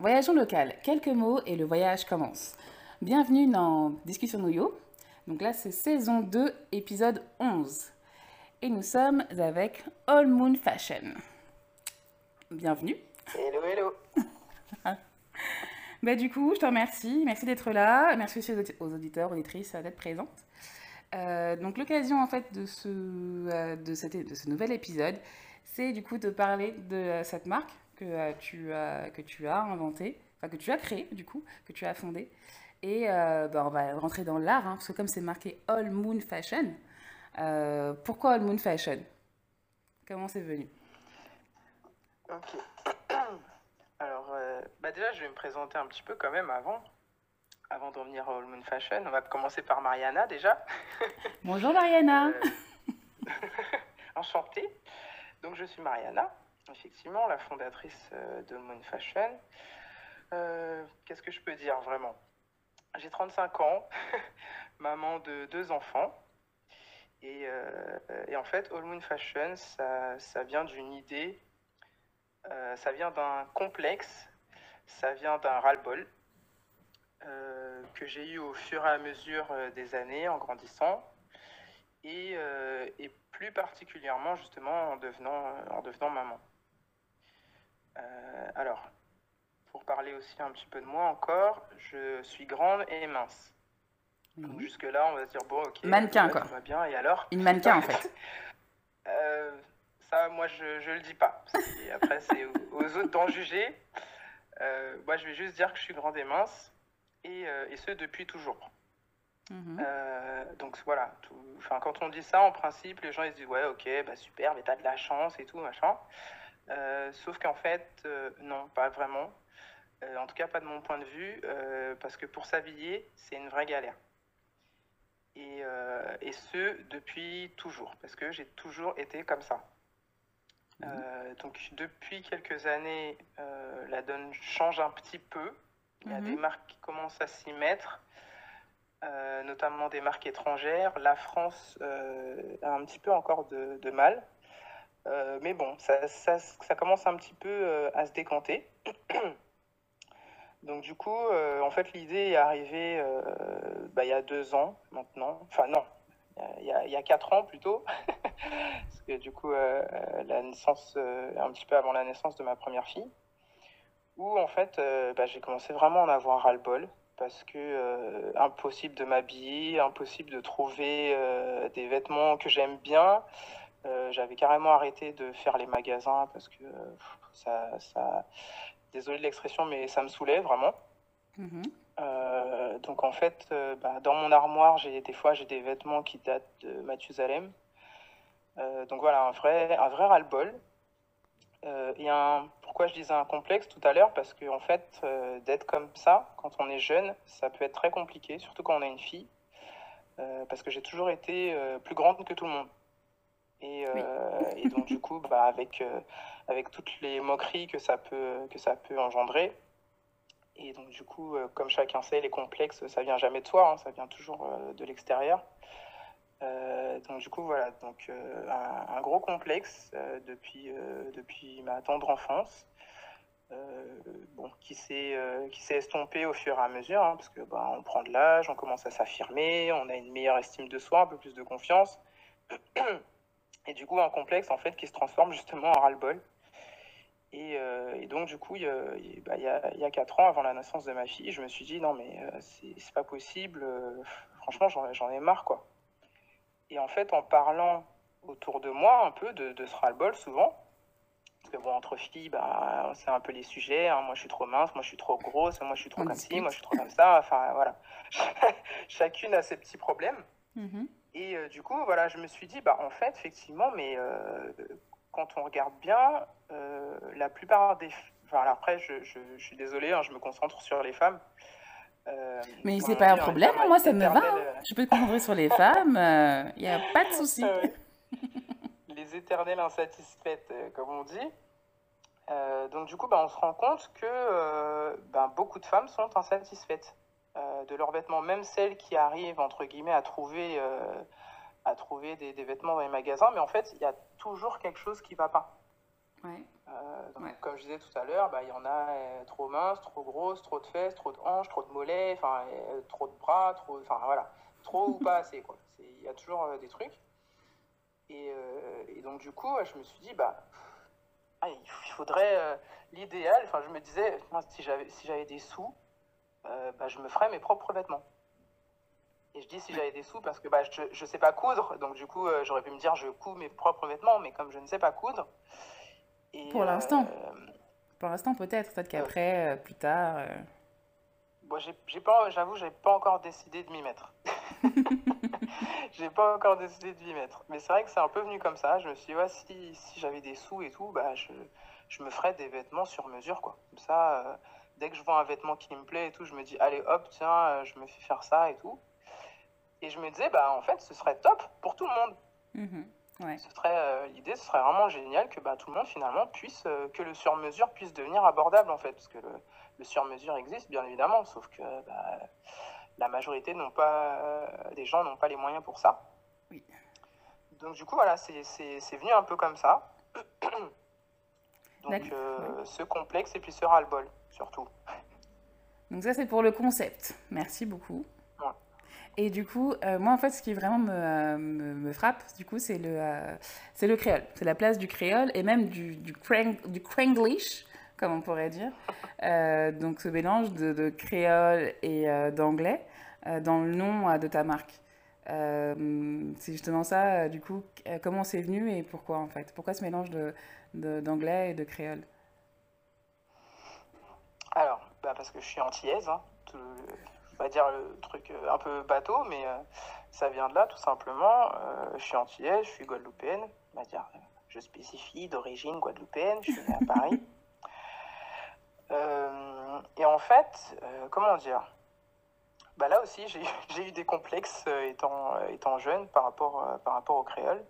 Voyageons local. Quelques mots et le voyage commence. Bienvenue dans Discussion Noyo. Donc là, c'est saison 2, épisode 11. Et nous sommes avec All Moon Fashion. Bienvenue. Hello, hello. bah, du coup, je te remercie. Merci d'être là. Merci aussi aux auditeurs, auditrices euh, d'être présentes. Euh, donc l'occasion en fait de ce, euh, de, cette, de ce nouvel épisode, c'est du coup de parler de euh, cette marque que, euh, tu, as, que tu as inventé, enfin, que tu as créé du coup, que tu as fondé. Et euh, bah, on va rentrer dans l'art, hein, parce que comme c'est marqué All Moon Fashion, euh, pourquoi All Moon Fashion Comment c'est venu Ok. Alors, euh, bah déjà, je vais me présenter un petit peu quand même avant. Avant d'en venir à All Moon Fashion, on va commencer par Mariana déjà. Bonjour Mariana. Euh... Enchantée. Donc, je suis Mariana. Effectivement, la fondatrice euh, de Moon Fashion. Euh, Qu'est-ce que je peux dire vraiment J'ai 35 ans, maman de deux enfants. Et, euh, et, en fait, All Moon Fashion, ça, ça vient d'une idée, euh, ça vient d'un complexe, ça vient d'un ras-le-bol euh, que j'ai eu au fur et à mesure euh, des années en grandissant. Et, et plus particulièrement justement en devenant, en devenant maman. Euh, alors, pour parler aussi un petit peu de moi encore, je suis grande et mince. Mmh. Donc jusque-là, on va se dire, bon, ok. Mannequin, euh, quoi. va bien, et alors Une mannequin, en fait. euh, ça, moi, je, je le dis pas. Après, c'est aux autres d'en juger. Euh, moi, je vais juste dire que je suis grande et mince, et, euh, et ce, depuis toujours. Mmh. donc voilà, tout, quand on dit ça, en principe, les gens ils se disent, ouais, ok, bah super, mais t'as de la chance et tout, machin. Euh, sauf qu'en fait, euh, non, pas vraiment. Euh, en tout cas, pas de mon point de vue, parce que pour s'habiller, c'est une vraie galère. Et, euh, et, ce depuis toujours, parce que j'ai toujours été comme ça. Mmh. Euh, donc depuis quelques années, euh, la donne change un petit peu. Il y a mmh. des marques qui commencent à s'y mettre, notamment des marques étrangères. La France a un petit peu encore de, de mal. Euh, mais bon, ça, ça, ça, commence un petit peu euh, à se décanter. Donc du coup, euh, en fait, l'idée est arrivée euh, bah, il y a deux ans maintenant. Enfin non, il y a, y a quatre ans plutôt. Parce que du coup, euh, la naissance, euh, un petit peu avant la naissance de ma première fille, où en fait, bah, j'ai commencé vraiment à en avoir ras-le-bol. Parce que impossible de m'habiller, impossible de trouver des vêtements que j'aime bien, Euh, j'avais carrément arrêté de faire les magasins parce que euh, ça, ça, désolé de l'expression, mais ça me saoulait vraiment. Mmh. Euh, donc en fait, euh, bah, dans mon armoire, j'ai des fois j'ai des vêtements qui datent de Mathusalem. Euh, donc voilà, un vrai, un vrai ras-le-bol. et un, pourquoi je disais un complexe tout à l'heure Parce que en fait, d'être comme ça, quand on est jeune, ça peut être très compliqué, surtout quand on a une fille. parce que j'ai toujours été plus grande que tout le monde. Et, euh, oui. et, donc du coup, bah, avec, euh, avec toutes les moqueries que ça peut, que ça peut engendrer, et donc du coup, euh, comme chacun sait, les complexes, ça vient jamais de soi, hein, ça vient toujours euh, de l'extérieur. Euh, donc du coup, voilà, donc euh, un, un, gros complexe depuis, depuis ma tendre enfance. bon, qui s'est estompé au fur et à mesure, hein, parce que bah, on prend de l'âge, on commence à s'affirmer, on a une meilleure estime de soi, un peu plus de confiance. Et du coup, un complexe en fait qui se transforme justement en ras-le-bol. Et, euh, et, donc, du coup, il y, a, bah, il, y a, il y, a, 4 ans, avant la naissance de ma fille, je me suis dit, non, mais euh, c'est pas possible. Euh, franchement, j'en ai marre, quoi. Et en fait, en parlant autour de moi un peu de, de ce ras-le-bol, souvent, parce que bon, entre filles, bah, c'est un peu les sujets. Hein, moi, je suis trop mince, moi, je suis trop grosse, moi, je suis trop On comme ci, moi, je suis trop comme ça. Enfin, voilà. Chacune a ses petits problèmes. Mm -hmm. Et euh, du coup, voilà, je me suis dit, bah, en fait, effectivement, mais euh, quand on regarde bien, euh, la plupart des. Enfin, après, je, je, je suis désolée, hein, je me concentre sur les femmes. euh mais c'est pas un problème, moi, ça me va. Euh, je peux te concentrer sur les femmes, il euh, n'y a pas de souci. Euh, les éternelles insatisfaites, comme on dit. donc, du coup, bah, on se rend compte que bah, beaucoup de femmes sont insatisfaites. Euh, de leurs vêtements, même celles qui arrivent, entre guillemets, à trouver, euh, à trouver des, des, vêtements dans les magasins, mais en fait, il y a toujours quelque chose qui ne va pas. Ouais. Euh, donc, ouais. Comme je disais tout à l'heure, il bah, y en a euh, trop minces, trop grosses, trop de fesses, trop de hanches, trop de mollets, trop de bras, trop, voilà, trop ou pas assez. Il y a toujours des trucs. Et, et, donc, du coup, je me suis dit, bah, ah, il faudrait euh, l'idéal. Enfin, je me disais, si j'avais si des sous, euh, bah, je me ferais mes propres vêtements. Et je dis si j'avais des sous parce que bah, je ne sais pas coudre, donc du coup euh, j'aurais pu me dire je couds mes propres vêtements, mais comme je ne sais pas coudre. Et, pour l'instant. Euh, pour l'instant peut-être, peut-être qu'après, euh, plus tard. Euh. Bon, j'ai pas, j'avoue, j'ai pas encore décidé de m'y mettre. j'ai pas encore décidé de m'y mettre. Mais c'est vrai que c'est un peu venu comme ça. Je me suis dit, ouais, si, si j'avais des sous et tout, bah, je, je, me ferais des vêtements sur mesure, quoi. Comme ça, euh, dès que je vois un vêtement qui me plaît et tout, je me dis, allez hop, tiens, euh, je me fais faire ça et tout. Et je me disais, bah, en fait, ce serait top pour tout le monde. Mmh, ouais. ce serait euh, L'idée, ce serait vraiment génial que bah, tout le monde, finalement, puisse, euh, que le sur-mesure puisse devenir abordable, en fait. Parce que le, le sur-mesure existe, bien évidemment, sauf que bah, la majorité n'ont pas, euh, des gens n'ont pas les moyens pour ça. Oui. Donc, du coup, voilà, c'est venu un peu comme ça. Donc euh, ce complexe et puis ce ras-le-bol, surtout. Donc ça, c'est pour le concept. Merci beaucoup. Et du coup, euh, moi, en fait, ce qui vraiment me, me, me frappe, du coup, c'est le, euh, c'est le créole. C'est la place du créole et même du, du, crang, du cranglish, comme on pourrait dire. Euh, donc ce mélange de, de créole et euh, d'anglais euh, dans le nom de ta marque. c'est justement ça, du coup, comment c'est venu et pourquoi, en fait Pourquoi ce mélange de d'anglais et de créole Alors, bah parce que je suis antillaise, hein, tout, je vais dire le truc euh, un peu bateau, mais euh, ça vient de là tout simplement. Euh, je suis antillaise, je suis guadeloupéenne, on va dire, euh, je spécifie d'origine guadeloupéenne, je suis née à Paris. Euh, et en fait, euh, comment dire bah là aussi, j'ai eu des complexes étant, étant jeune par rapport, par rapport au créole.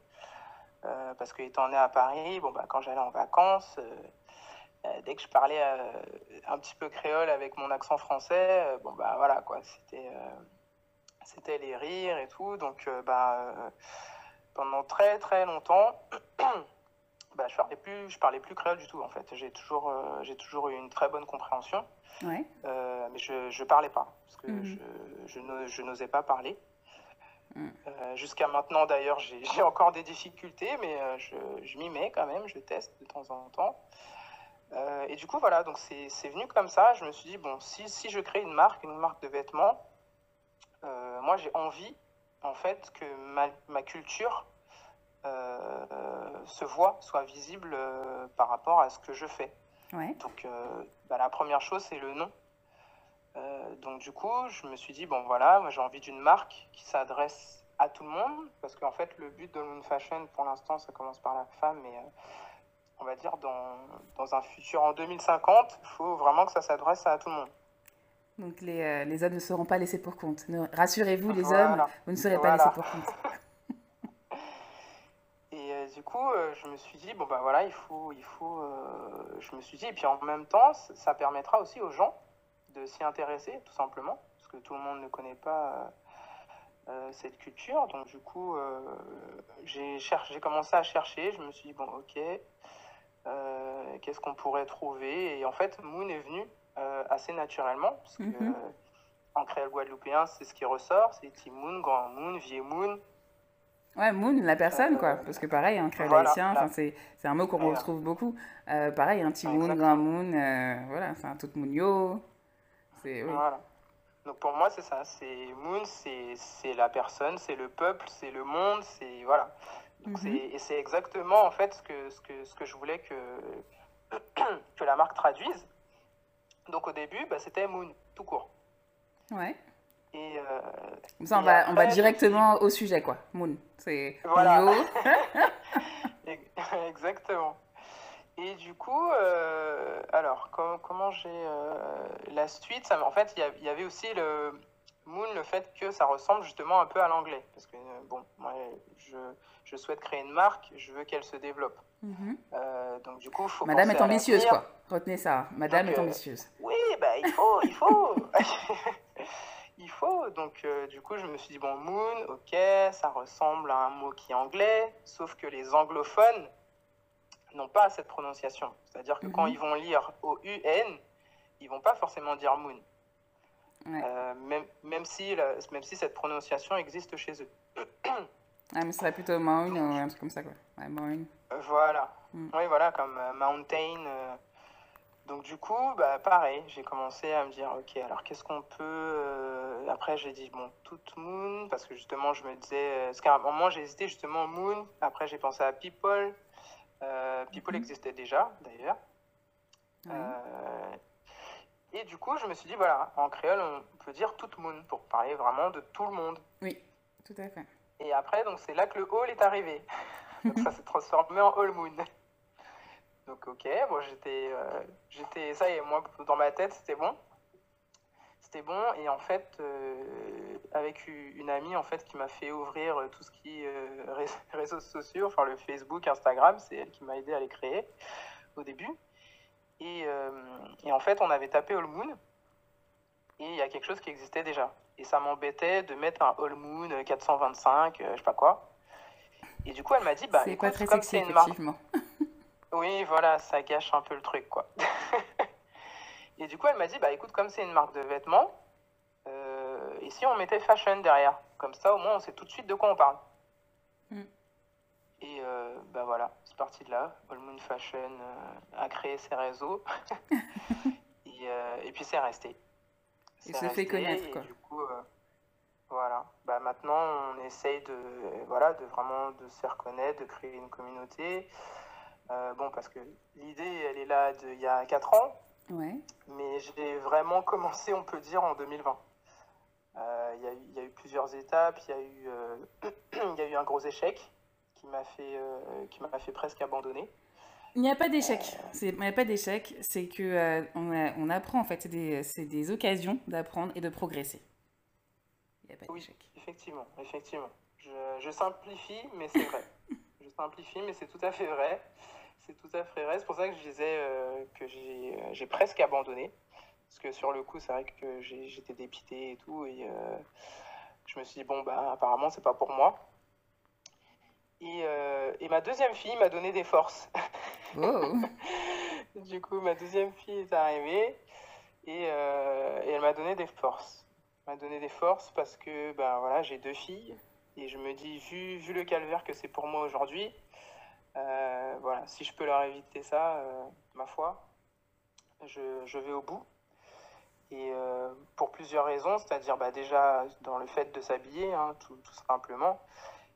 Euh, parce que étant né à Paris, bon, bah, quand j'allais en vacances, euh, euh dès que je parlais euh, un petit peu créole avec mon accent français, bon, bah, voilà, quoi, c'était, c'était les rires et tout. Donc, bah, pendant très très longtemps, bah, je parlais plus, je parlais plus créole du tout, en fait. J'ai toujours, j'ai toujours eu une très bonne compréhension. Ouais. mais je ne parlais pas, parce que mm je, je n'osais pas parler. Mm. Euh, Jusqu'à maintenant, d'ailleurs, j'ai encore des difficultés, mais euh, je, je m'y mets quand même, je teste de temps en temps. Euh, et du coup, voilà, donc c'est venu comme ça. Je me suis dit, bon, si, si je crée une marque, une marque de vêtements, euh, moi j'ai envie, en fait, que ma, ma culture euh, se voit, soit visible euh, par rapport à ce que je fais. Ouais. Donc, bah, la première chose, c'est le nom. Euh, donc du coup, je me suis dit, bon voilà, moi j'ai envie d'une marque qui s'adresse à tout le monde, parce qu'en fait, le but de Moon Fashion, pour l'instant, ça commence par la femme, mais euh, on va dire dans, dans, un futur en 2050, il faut vraiment que ça s'adresse à tout le monde. Donc les, euh, les, hommes ne seront pas laissés pour compte. Rassurez-vous, les voilà. hommes, vous ne serez voilà. pas laissés pour compte. et euh, du coup, euh, je me suis dit, bon ben bah, voilà, il faut, il faut, euh, je me suis dit, et puis en même temps, ça permettra aussi aux gens de s'y intéresser, tout simplement, parce que tout le monde ne connaît pas euh, euh cette culture. Donc, du coup, euh, j'ai commencé à chercher. Je me suis dit, bon, ok, euh, qu'est-ce qu'on pourrait trouver Et en fait, Moon est venu assez naturellement, parce mm -hmm. que mm-hmm. en créole guadeloupéen, c'est ce qui ressort c'est moon Grand Moon, Vieux Moon. Ouais, Moon, la personne, quoi. Parce que pareil, en créole haïtien voilà, c'est un mot qu'on retrouve beaucoup. Euh, pareil, un petit Moon, Grand Moon, euh, voilà, c'est un tout Mounio. C'est, oui. Voilà. Donc pour moi, c'est ça. C'est Moon, c'est la personne, c'est le peuple, c'est le monde, c'est. Voilà. Donc mm -hmm. Et c'est exactement, en fait, ce que, ce que, ce que je voulais que, que la marque traduise. Donc au début, bah, c'était Moon, tout court. Ouais. Et euh, ça, on, et va, après, on va directement au sujet, quoi. Moon, c'est voilà. Exactement. Et du coup, euh, alors, com comment j'ai euh, la suite ça, En fait, il y, y, avait aussi le Moon, le fait que ça ressemble justement un peu à l'anglais. Parce que, euh, bon, moi, je, je, souhaite créer une marque, je veux qu'elle se développe. Mm -hmm. donc, du coup, faut Madame est ambitieuse, quoi. Retenez ça. Madame donc, est euh, ambitieuse. oui, bah, il faut, il faut. il faut. Donc, euh, du coup, je me suis dit, bon, Moon, ok, ça ressemble à un mot qui est anglais, sauf que les anglophones n'ont pas cette prononciation. C'est-à-dire que mm -hmm. quand mhm. ils vont lire au UN, ils vont pas forcément dire Moon. Ouais. Euh, même, même, si la, même si cette prononciation existe chez eux. ah, mais ce serait plutôt Moon ou un truc comme ça, quoi. Ouais, moon. Euh, voilà. Mm. Oui, voilà, comme euh, Mountain. Euh. Donc, du coup, bah, pareil, j'ai commencé à me dire, OK, alors qu'est-ce qu'on peut. Euh, après, j'ai dit, bon, tout Moon, parce que justement, je me disais. Parce qu'à un moment, j'ai hésité justement Moon. Après, j'ai pensé à People. Euh, People mm -hmm. existait déjà, d'ailleurs. Ouais. Euh, et du coup, je me suis dit, voilà, en créole, on peut dire tout le monde pour parler vraiment de tout le monde. Oui, tout à fait. Et après, donc c'est là que le hall est arrivé. donc ça s'est transformé en hall moon. Donc ok, bon, j'étais, euh, j'étais, ça est moi dans ma tête, c'était bon. C'était bon et en fait, euh, avec une amie en fait qui m'a fait ouvrir euh, tout ce qui est euh, réseaux sociaux, enfin le Facebook, Instagram, c'est elle qui m'a aidé à les créer au début. Et, euh, et, en fait, on avait tapé All Moon et il y a quelque chose qui existait déjà. Et ça m'embêtait de mettre un All Moon 425, euh, euh, je sais pas quoi. Et du coup, elle m'a dit, bah, c'est pas très comme sexy, une effectivement. Marque... Oui, voilà, ça gâche un peu le truc, quoi. et du coup, elle m'a dit, bah, écoute, comme c'est une marque de vêtements, et si on mettait fashion derrière Comme ça, au moins, on sait tout de suite de quoi on parle. Mm. Et euh, bah voilà, c'est parti de là. All Moon Fashion euh, a créé ses réseaux. et, euh, et, puis c'est resté. Il se fait connaître, et Du coup, euh, voilà. Bah maintenant, on essaye de, voilà, de vraiment de se faire connaître, de créer une communauté. Euh, bon, parce que l'idée, elle est là de, il y a 4 ans. Ouais. Mais j'ai vraiment commencé, on peut dire, en 2020. Euh, il y, y, a eu plusieurs étapes. Il y, eu euh, y, a eu un gros échec qui m'a fait, euh, qui m'a fait presque abandonner. Il n'y a pas d'échec. Il n'y a pas d'échec. C'est que euh, on, on, apprend en fait. C'est des, des, occasions d'apprendre et de progresser. Il n'y a pas d'échec. Oui, effectivement, effectivement. Je, je simplifie, mais c'est vrai. je simplifie, mais c'est tout à fait vrai. C'est tout à fait vrai. C'est pour ça que je disais euh, que j'ai presque abandonné. Parce que sur le coup, c'est vrai que j'étais dépité et tout. Et euh, je me suis dit, bon, bah, apparemment, c'est pas pour moi. Et, euh, et ma deuxième fille m'a donné des forces. Oh. du coup, ma deuxième fille est arrivée et, euh, et elle m'a donné des forces. M'a donné des forces parce que ben voilà, j'ai deux filles et je me dis vu, vu le calvaire que c'est pour moi aujourd'hui, euh, voilà, si je peux leur éviter ça, euh, ma foi, je, je, vais au bout. Et euh, pour plusieurs raisons, c'est-à-dire bah, déjà dans le fait de s'habiller, hein, tout, tout, simplement,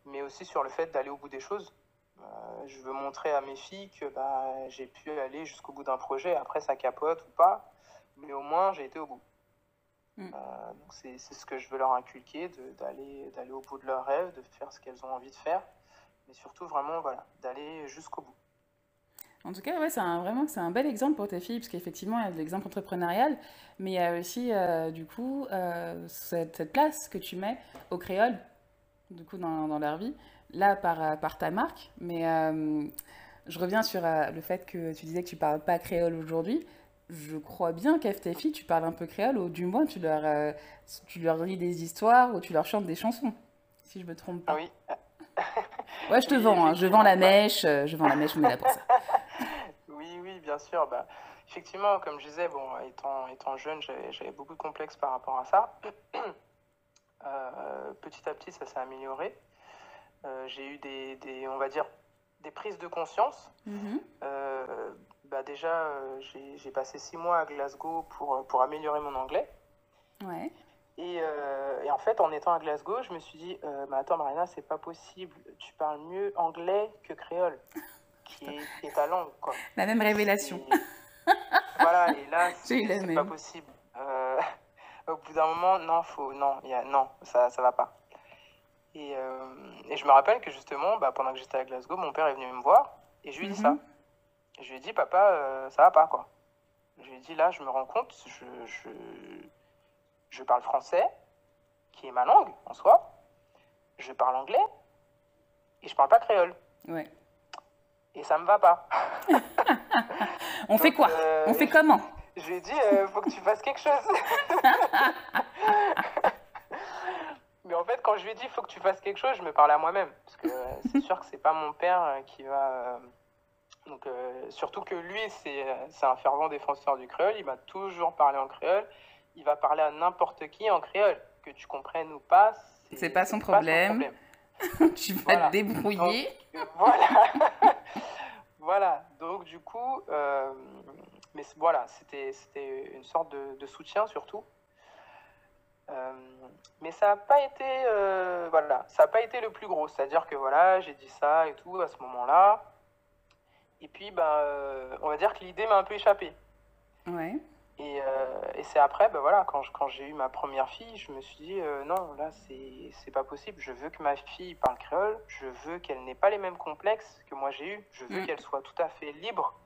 mais aussi sur le fait d'aller au bout des choses. Euh, je veux montrer à mes filles que bah, j'ai pu aller jusqu'au bout d'un projet, après ça capote ou pas, mais au moins j'ai été au bout. Mm. Euh, donc c'est ce que je veux leur inculquer, d'aller au bout de leurs rêves, de faire ce qu'elles ont envie de faire, mais surtout vraiment voilà, d'aller jusqu'au bout. En tout cas, ouais, c'est un, vraiment c'est un bel exemple pour tes filles, parce qu'effectivement, il y a de l'exemple entrepreneurial, mais il y a aussi, euh, du coup, euh, cette, cette, place que tu mets au créoles, du coup, dans, dans leur vie, là, par, euh, par ta marque. Mais euh, je reviens sur euh, le fait que tu disais que tu ne parles pas créole aujourd'hui. Je crois bien qu'à tes filles, tu parles un peu créole, ou du moins, tu leur, euh, tu leur lis des histoires, ou tu leur chantes des chansons, si je ne me trompe pas. ah Oui. Ouais, je te vends, hein. je vends la mèche, je vends la mèche, on est là pour ça. bien sûr. Bah, effectivement, comme je disais, bon, étant, étant jeune, j'avais beaucoup de complexes par rapport à ça. euh, petit à petit, ça s'est amélioré. Euh, j'ai eu des, des, on va dire, des prises de conscience. Mm -hmm. euh, bah déjà, euh, j'ai passé six mois à Glasgow pour, pour améliorer mon anglais. Ouais. Et, euh, et, en fait, en étant à Glasgow, je me suis dit, euh, bah attends Marina, c'est pas possible, tu parles mieux anglais que créole. qui, est à Londres. Quoi. La même révélation. Et, voilà, et là, c'est pas possible. Euh, au bout d'un moment, non, faut, non, y a, non ça ça va pas. Et, euh, et, je me rappelle que justement, bah, pendant que j'étais à Glasgow, mon père est venu me voir et je lui ai dit mm -hmm. ça. Mm-hmm. je lui ai dit, papa, euh, ça va pas, quoi. Je lui ai dit, là, je me rends compte, je, je, je parle français, qui est ma langue en soi, je parle anglais, et je parle pas créole. Ouais. et ça me va pas. on Donc, fait quoi euh, On fait comment Je lui ai dit, euh, faut que tu fasses quelque chose. Mais en fait, quand je lui ai dit, faut que tu fasses quelque chose, je me parlais à moi-même. Parce que euh, c'est sûr que c'est pas mon père euh, qui va. Euh, donc, euh, surtout que lui, c'est un fervent défenseur du créole. Il va toujours parler en créole. Il va parler à n'importe qui en créole. Que tu comprennes ou pas, c'est pas, pas, son problème. tu vas voilà. te débrouiller. Donc, voilà. voilà. Donc, du coup, euh, mais voilà, c'était une sorte de, de soutien surtout. Euh, mais ça n'a pas été euh, voilà ça a pas été le plus gros c'est à dire que voilà j'ai dit ça et tout à ce moment là et puis ben euh, on va dire que l'idée m'a un peu échappé ouais. Et, euh, et c'est après, ben voilà, quand, quand j'ai eu ma première fille, je me suis dit euh, non, là, c'est pas possible. Je veux que ma fille parle créole, je veux qu'elle n'ait pas les mêmes complexes que moi j'ai eu, je veux mmh. qu'elle soit tout à fait libre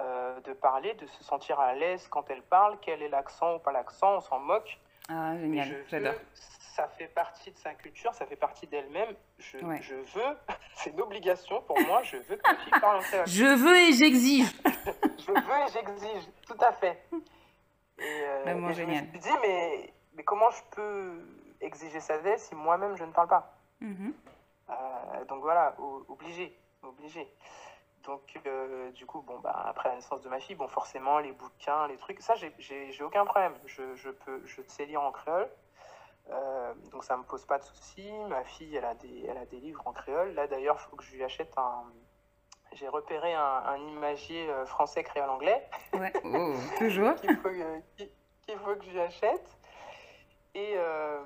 euh, de parler, de se sentir à l'aise quand elle parle, quel est l'accent ou pas l'accent, on s'en moque. Ah, génial, j'adore. Ça fait partie de sa culture, ça fait partie d'elle-même. Je, ouais. je, veux, c'est une obligation pour moi, je veux que ma fille parle en créole. Je veux et j'exige. je veux et j'exige, tout à fait. Et, Le euh, mot et génial. Je me suis dit, mais, mais comment je peux exiger sa d'elle si moi-même je ne parle pas mm -hmm. Donc voilà, obligé, obligé. Donc, euh, du coup, bon, bah, après la naissance de ma fille, bon, forcément, les bouquins, les trucs, ça, j'ai aucun problème. Je, je, peux, je sais lire en créole, euh, donc ça me pose pas de soucis. Ma fille, elle a des, elle a des livres en créole. Là, d'ailleurs, il faut que je lui achète un, j'ai repéré un, un, imagier euh, français créole anglais. Ouais. Oh, toujours. qu'il faut, faut, que j'achète. Et, euh,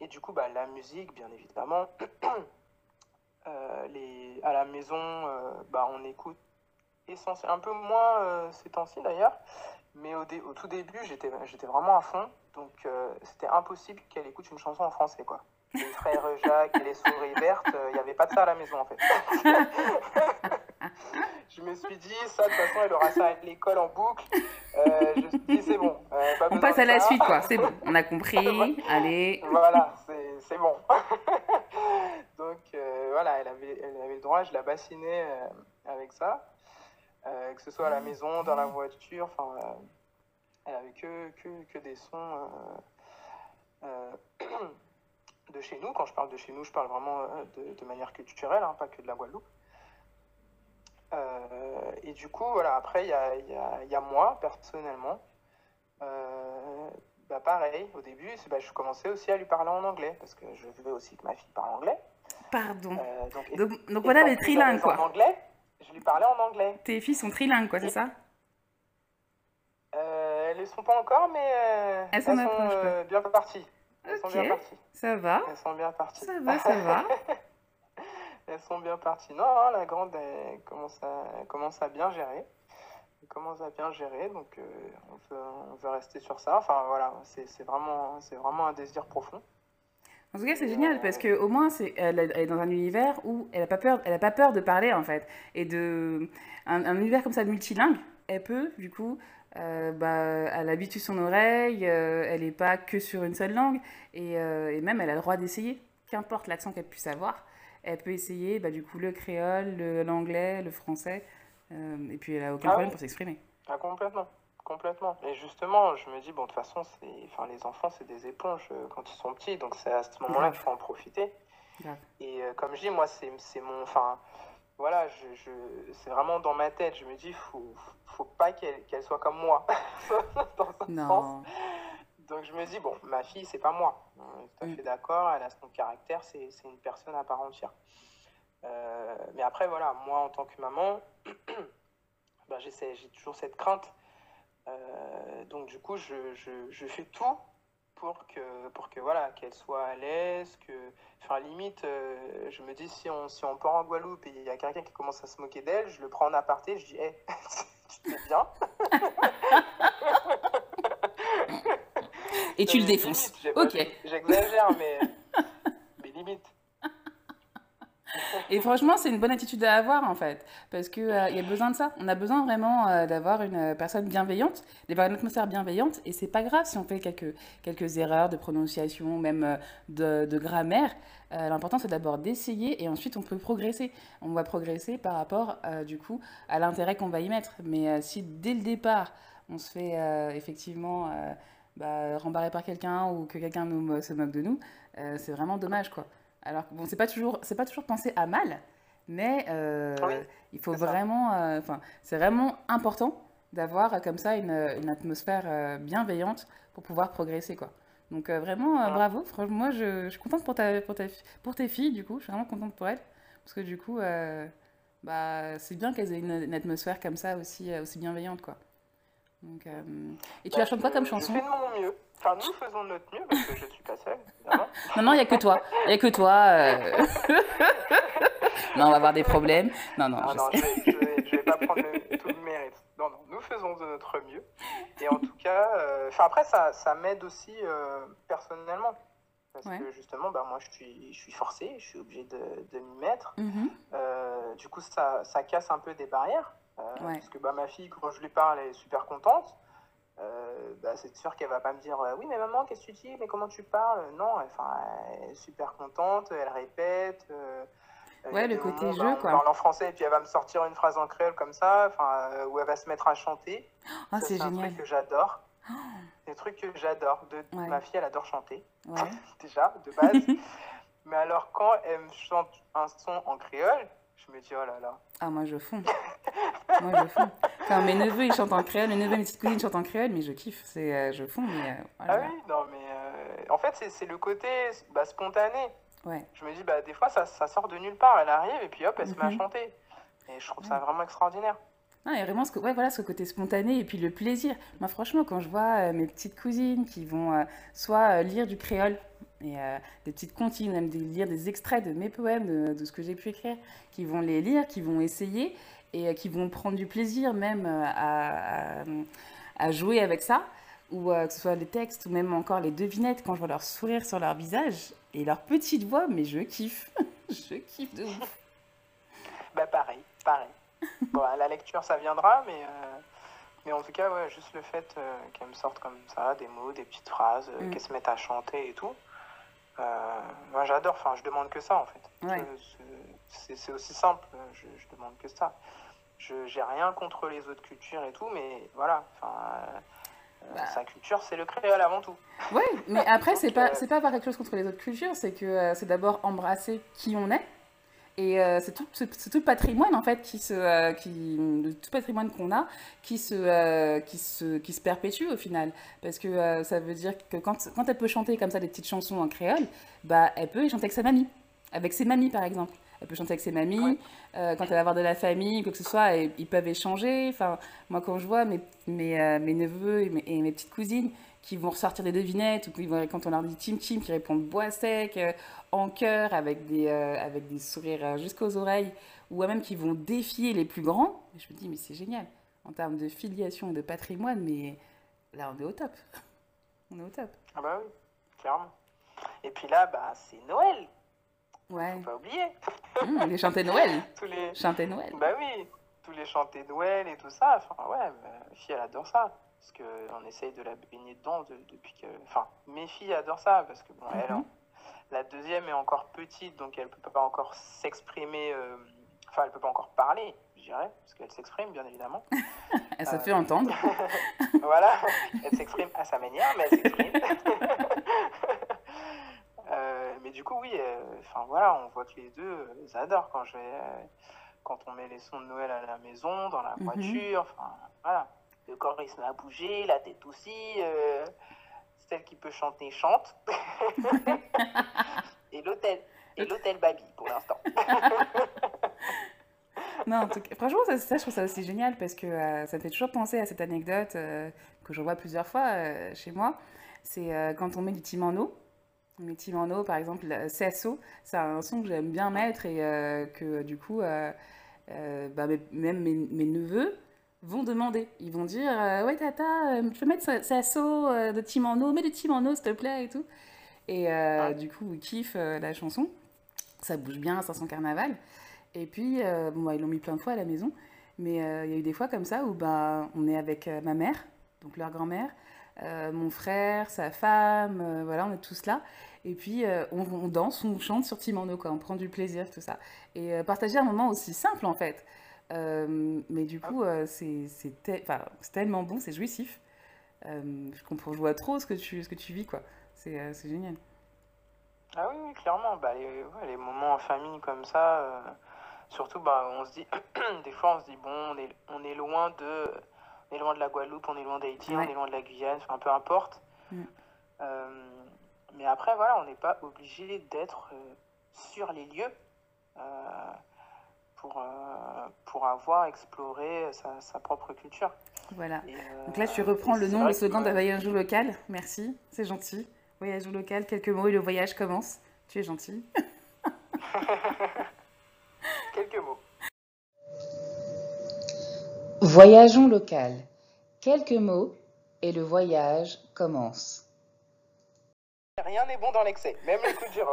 et du coup, bah, la musique, bien évidemment. euh, les, à la maison, euh, bah, on écoute essentiellement, un peu moins euh, ces temps-ci d'ailleurs. Mais au, dé, au, tout début, j'étais vraiment à fond. Donc, euh, c'était impossible qu'elle écoute une chanson en français, quoi les frères Jacques et les souris vertes, il euh, n'y avait pas de ça à la maison en fait. je me suis dit, ça, de toute façon, elle aura ça à l'école en boucle. Euh, je me suis dit, c'est bon. Euh, on passe à la suite, quoi. C'est bon, on a compris. Allez. Voilà, c'est bon. Donc, euh, voilà, elle avait, elle avait le droit, je la bassinais euh, avec ça. euh que ce soit à la maison, dans la voiture, enfin, euh, elle avait que, que, que des sons. euh, euh de chez nous, quand je parle de chez nous, je parle vraiment de, de manière culturelle, hein, pas que de la Guadeloupe. Euh, et du coup, voilà, après, il y a, y, a, y a, moi, personnellement. Euh, bah pareil, au début, bah, je commençais aussi à lui parler en anglais, parce que je veux aussi que ma fille parle anglais. Pardon. Euh, donc, donc, donc voilà les trilingues, quoi. En anglais, je lui parlais en anglais. Tes filles sont trilingues, quoi, c'est ça euh, Elles ne sont pas encore, mais euh, elles, sont, euh, elles sont bien parties. Elles okay. sont bien parties. Ça va. Elles sont bien parties. Ça va, ça va. elles sont bien parties. Non, la grande, elle commence à, elle commence à bien gérer. Elle commence à bien gérer, donc euh, on, veut, on, veut, rester sur ça. Enfin voilà, c'est vraiment, vraiment un désir profond. En tout cas, c'est génial euh, parce que au moins, c'est, elle, elle, est dans un univers où elle a pas peur, elle a pas peur de parler en fait, et de un, un univers comme ça multilingue, elle peut du coup, euh, bah, elle habitue son oreille, euh, elle n'est pas que sur une seule langue, et, euh, et, même elle a le droit d'essayer, qu'importe l'accent qu'elle puisse avoir. elle peut essayer bah, du coup le créole, l'anglais, le, le, français, euh, et puis elle a aucun ah problème oui. pour s'exprimer. Ah, complètement, complètement. Et justement, je me dis, bon, de toute façon, enfin, les enfants, c'est des éponges euh, quand ils sont petits, donc c'est à ce moment-là qu'il faut en profiter. Et euh, comme je dis, moi, c'est mon. Enfin, voilà, je, je c'est vraiment dans ma tête. Je me dis, faut, faut pas qu'elle qu soit comme moi. dans un non. Sens. Donc je me dis, bon, ma fille, c'est pas moi. On euh, est tout à mm. fait d'accord, elle a son caractère, c'est une personne à part entière. Euh, mais après, voilà, moi, en tant que maman, ben, j'ai toujours cette crainte. Euh, donc du coup, je, je, je, fais tout pour que, pour que voilà, qu'elle soit à l'aise, que... Enfin, limite, euh, je me dis, si on, si on part en Guadeloupe et il y a quelqu'un qui commence à se moquer d'elle, je le prends en aparté, je dis, hé, hey, tu te bien Et tu le défonces. ok. J'exagère, mais, mais limite. Et franchement, c'est une bonne attitude à avoir en fait, parce qu'il euh, y a besoin de ça. On a besoin vraiment euh, d'avoir une euh, personne bienveillante, d'avoir une atmosphère bienveillante, et c'est pas grave si on fait quelques, quelques erreurs de prononciation, même euh, de, de grammaire. Euh, L'important c'est d'abord d'essayer et ensuite on peut progresser. On va progresser par rapport euh, du coup à l'intérêt qu'on va y mettre. Mais si dès le départ on se fait effectivement bah, rembarrés par quelqu'un ou que quelqu'un nous, se moque de nous, euh, c'est vraiment dommage, quoi. Alors que, bon, c'est pas toujours, c'est pas toujours pensé à mal, mais euh, oui, il faut vraiment, euh, enfin, c'est vraiment important d'avoir comme ça une, une atmosphère euh bienveillante pour pouvoir progresser, quoi. Donc euh, vraiment, ah. bravo. Franchement, moi, je, je, suis contente pour ta, pour ta, pour tes filles, du coup. Je suis vraiment contente pour elles, parce que du coup, euh bah, c'est bien qu'elles aient une, une, atmosphère comme ça aussi, aussi bienveillante, quoi. Donc, euh... Et tu la chantes quoi comme chanson Je fais de mon mieux. Enfin, nous faisons de notre mieux parce que je ne suis pas seule. non, non, il n'y a que toi. Il n'y a que toi. Euh... non, on va avoir des problèmes. Non, non, ah, je non, sais. Je vais, je vais, vais pas prendre le, tout le mérite. Non, non, nous faisons de notre mieux. Et en tout cas, euh... après, ça, ça m'aide aussi euh, personnellement. Parce ouais. que justement, bah, moi, je suis, je suis forcée je suis obligée de, de m'y mettre. Mm -hmm. du coup, ça, ça casse un peu des barrières. Euh, ouais. Parce que bah, ma fille, quand je lui parle, elle est super contente. Euh, bah, c'est sûr qu'elle va pas me dire euh, oui mais maman qu'est-ce que tu dis mais comment tu parles euh, non enfin elle est super contente elle répète euh, ouais le côté jeu bah, quoi parle en français et puis elle va me sortir une phrase en créole comme ça enfin euh, où elle va se mettre à chanter oh, c'est génial un truc que j'adore oh. un trucs que j'adore de ouais. ma fille elle adore chanter ouais. déjà de base mais alors quand elle me chante un son en créole Je me dis, oh là là. Ah, moi, je fonds. moi, je fonds. Enfin, mes neveux, ils chantent en créole, mes neveux, mes petites cousines chantent en créole, mais je kiffe. C'est, euh, je fonds, mais. Euh, voilà. Ah oui, non, mais. Euh, en fait, c'est, le côté bah, spontané. Ouais. Je me dis, bah, des fois, ça, ça, sort de nulle part. Elle arrive et puis hop, elle mm -hmm. se met à mhm. chanter. Et je trouve ouais. ça vraiment extraordinaire. ah et vraiment ce, que, ouais, voilà, ce côté spontané et puis le plaisir. Moi, franchement, quand je vois euh, mes petites cousines qui vont euh, soit euh, lire du créole, et euh, des petites comptines, même de lire des extraits de mes poèmes, de, de ce que j'ai pu écrire, qui vont les lire, qui vont essayer et euh, qui vont prendre du plaisir même euh, à, à, à, jouer avec ça, ou euh, que ce soit les textes ou même encore les devinettes quand je vois leur sourire sur leur visage et leur petite voix, mais je kiffe, je kiffe de ouf. bah pareil, pareil. bon, la lecture ça viendra, mais euh, mais en tout cas, ouais, juste le fait euh, qu'elles me sortent comme ça, des mots, des petites phrases, mmh. qu'elles se mettent à chanter et tout, euh moi, j'adore, enfin, je demande que ça, en fait. Ouais. C'est aussi simple, je, je, demande que ça. Je j'ai rien contre les autres cultures et tout, mais voilà, enfin... Euh, bah. Sa culture, c'est le créole avant tout. Oui, mais après, c'est pas, euh... pas avoir quelque chose contre les autres cultures, c'est que euh, c'est d'abord embrasser qui on est, Et euh, c'est tout, tout, patrimoine en fait qui se, euh, qui, tout patrimoine qu'on a, qui se, euh, qui se, qui se perpétue au final, parce que euh, ça veut dire que quand, quand, elle peut chanter comme ça des petites chansons en créole, bah elle peut y chanter avec sa mamie, avec ses mamies par exemple. Elle peut chanter avec ses mamies, ouais. Euh, quand elle va avoir de la famille, quoi que ce soit, ils peuvent échanger. Enfin, moi quand je vois mes, mes, euh, mes neveux et mes, et mes petites cousines qui vont ressortir des devinettes, ou vont, quand on leur dit Tim Tim, qui répondent bois sec, euh, en cœur, avec des, euh, avec des sourires euh, jusqu'aux oreilles, ou même qui vont défier les plus grands. je me dis, mais c'est génial, en termes de filiation et de patrimoine, mais là, on est au top. on est au top. Ah bah oui, clairement. Et puis là, bah, c'est Noël. Ouais. Faut pas oublier. Mmh, les chanter Noël. tous les... Chanter Noël. Bah oui, tous les chanter Noël et tout ça. Enfin, ouais, ma fille, elle adore ça. parce on essaye de la baigner dedans de, depuis que. Enfin, mes filles adorent ça, parce que bon, mm -hmm. elle, mhm. la deuxième est encore petite, donc elle peut pas encore s'exprimer, euh... enfin, elle peut pas encore parler, je dirais, parce qu'elle s'exprime, bien évidemment. elle se euh... fait entendre. voilà, elle s'exprime à sa manière, mais elle s'exprime. euh, mais du coup, oui, euh, enfin voilà, on voit que les deux, ils euh, adorent quand je vais, euh, quand on met les sons de Noël à la maison, dans la mhm. voiture, enfin voilà. le corps il se met à bouger, la tête aussi. Euh, celle qui peut chanter chante. et l'hôtel, et l'hôtel Babi pour l'instant. non, en tout cas, franchement, ça, ça, je trouve ça aussi génial parce que euh, ça me fait toujours penser à cette anecdote euh, que je vois plusieurs fois euh, chez moi. C'est euh, quand on met du en eau On met en eau par exemple, CSO, euh, c'est un son que j'aime bien mettre et euh, que du coup, bah, mes, même mes, mes neveux vont demander. Ils vont dire euh, Ouais, tata, je euh, peux mettre sa, sa so, euh, de Timano, mets de Timano, s'il te plaît, et tout. Et euh, ah. du coup, ils kiffent euh, la chanson. Ça bouge bien, 500 carnaval. Et puis, euh, bon, bah, ils l'ont mis plein de fois à la maison. Mais il y a eu des fois comme ça où bah, on est avec ma mère, donc leur grand-mère, euh mon frère, sa femme, voilà, on est tous là. Et puis, euh, on, on, danse, on chante sur Timano, quoi. On prend du plaisir, tout ça. Et euh, partager un moment aussi simple, en fait. ehm mais du coup, euh, c'est te... tellement bon, c'est jouissif. Euh, je comprends, je vois trop ce que tu, ce que tu vis, quoi. Euh, c'est génial. Ah oui, oui clairement. Bah, les, ouais, les, moments en famille comme ça, euh, surtout, bah, on se dit, des fois, on se dit, bon, on est, on est loin de, on est loin de la Guadeloupe, on est loin d'Haïti, ouais. on est loin de la Guyane, enfin, peu importe. Mm. Euh, mais après, voilà, on n'est pas obligé d'être sur les lieux. pour, euh, pour avoir exploré sa, sa propre culture. Voilà. Euh, Donc là, tu reprends le nom, le slogan d'un voyage local. Merci, c'est gentil. Voyage local, quelques mots et le voyage commence. Tu es gentil. quelques mots. Voyageons local. Quelques mots et le voyage commence. Rien n'est bon dans l'excès, même les coups de